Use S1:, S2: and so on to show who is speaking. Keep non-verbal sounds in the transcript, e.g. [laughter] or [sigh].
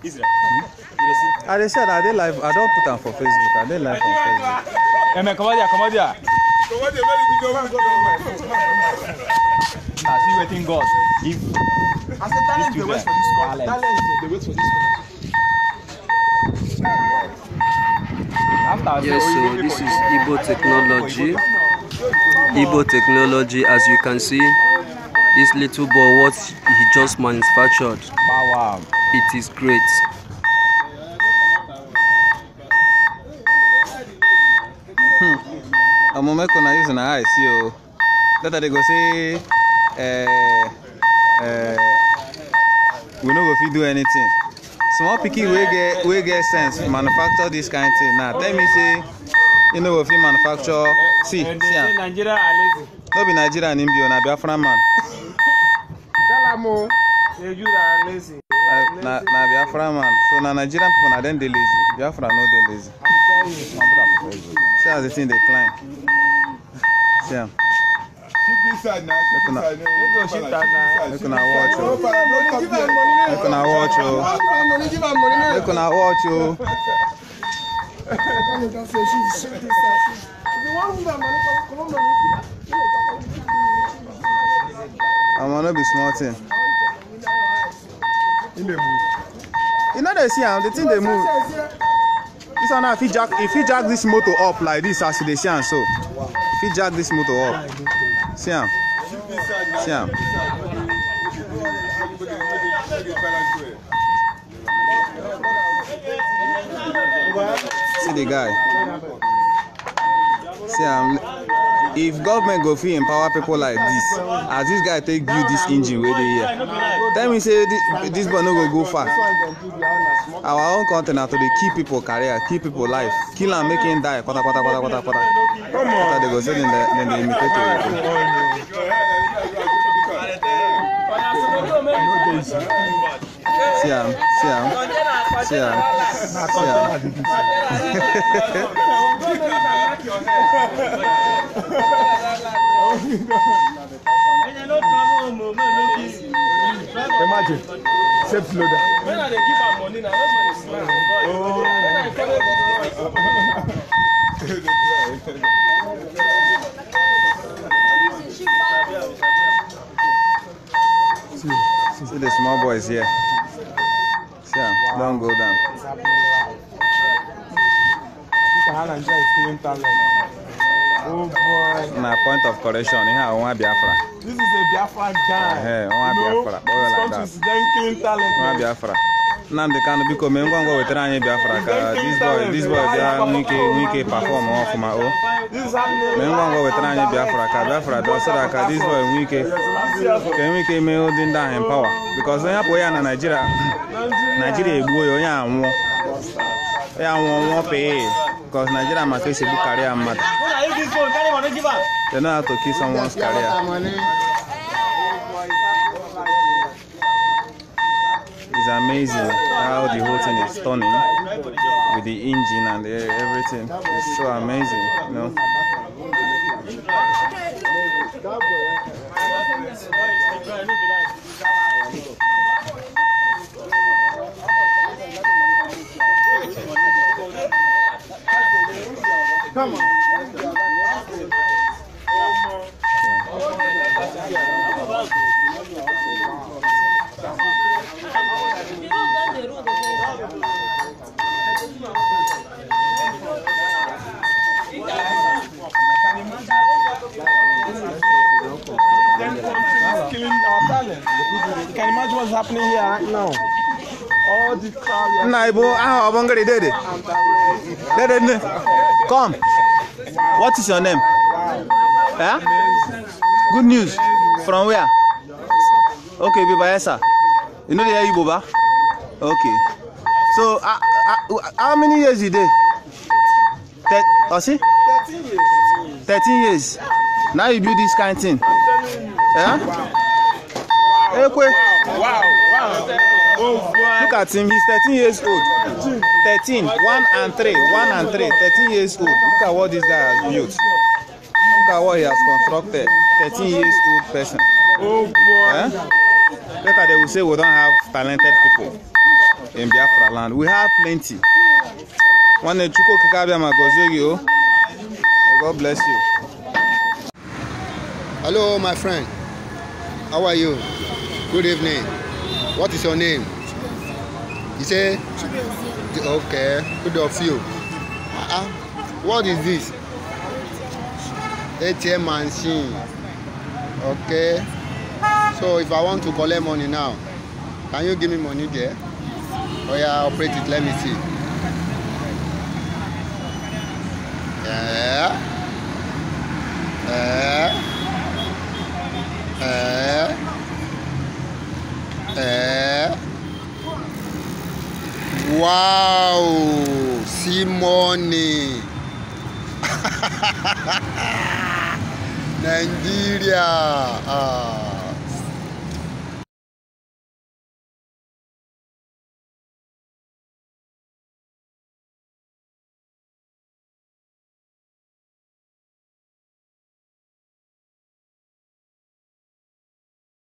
S1: Hmm? Israel. I dey share I dey live. I don put them for Facebook. I dey live on Facebook. Eme, come here, come here. Come ah, here, where you go? Now see waiting God. If I said talent dey wait for this call. Talent dey wait for this call. Yes, so this is Ibo technology. Ibo technology, as you can see, this little boy, what he just manufactured. Wow. It is great. I'm hmm. mẹ́kọ̀ọ́ na use na eye see o later they go say uh, uh, we no go fit do anything small picky, wey get wey get sense manufacture this kind of thing now tell me say you no go fit manufacture see eh, see am no be nigeria ni bi o oh, na biafra man. tell am o nigeria lazy
S2: uh, na, na Biafra
S1: man. So na Nigerian people na them they lazy. Biafra no they lazy. See as the thing they climb. See am. Make una watch o. Oh. Make una watch o. Oh. Make una watch o. Oh. Omo no be small thing e dey move you no dey see am um, the thing dey move this one now fit jack e fit jack this motor up like this as you dey see am so e fit jack this motor up see am see am. See the guy. See, I'm if government go fit empower people like dis as dis guy take build dis engine wey dey here tell me say dis boy no go go far our own country na to dey kill people career kill people life kill am make him die kpatakpata kpatakpata kpata dey go say dem dey imitate oyibo see am see am see am see am. Imagine, safe loader. When I dey give am money na, no money smile. see the small boys here. Yeah, wow. don't go down. It's happening live. You can enjoy the talent. Oh boy. Na point of correction, ihe a nwa Biafra. This is a Biafra guy. Hey, want Biafra. You know, this country is very clean Biafra. Nnamdi Kanu biko mee ngwa ngwa wetara anyị Biafra ka this boy boy bịa nwike nwike perform ọfụma o mee ngwa ngwa wetara anyị Biafra ka Biafra bịa so ka this boy nwike ka nwike mee ụdị ndị ahụ empower because onye apụ ya na Naijiria Naijiria egbuo ya onye anwụọ ya nwụọ nwụọ pee because Nigeria maka esi a karịa mmadụ matter. They karịa. amazing how the whole thing is stunning with the engine and the, everything. It's so amazing, you know. Come on. happening here right now. All this crowd. Naibo, ah, Obongari, Dede. Dede, come. What is your name? Yeah. Good news. From where? Okay, Biba, yes, sir. You know the Ibo, ba? Okay. So, uh, uh, how many years you did? Thir oh, see? 13 years. 13 years. Now you do this kind of thing. Yeah? Wow. Wow. Hey, wow. Wow, wow. Oh, look at him, he's 13 years old. 13, 1 and 3, 1 and 3, 13 years old. Look at what this guy has built. Look at what he has constructed. 13 years old person. Oh boy. Eh? Later they will say we don't have talented people in Biafra land. We have plenty. One Chuko Kikabia Magozoyo. Oh. God bless you. Hello, my friend. How are you? Good evening. What is your name? You say? Okay. Good of you. Uh-uh. What is this? ATM machine. Okay. So if I want to collect money now, can you give me money there? Oh yeah, operate it. Let me see. Yeah. wow Simone! [laughs] Nigeria. Ah.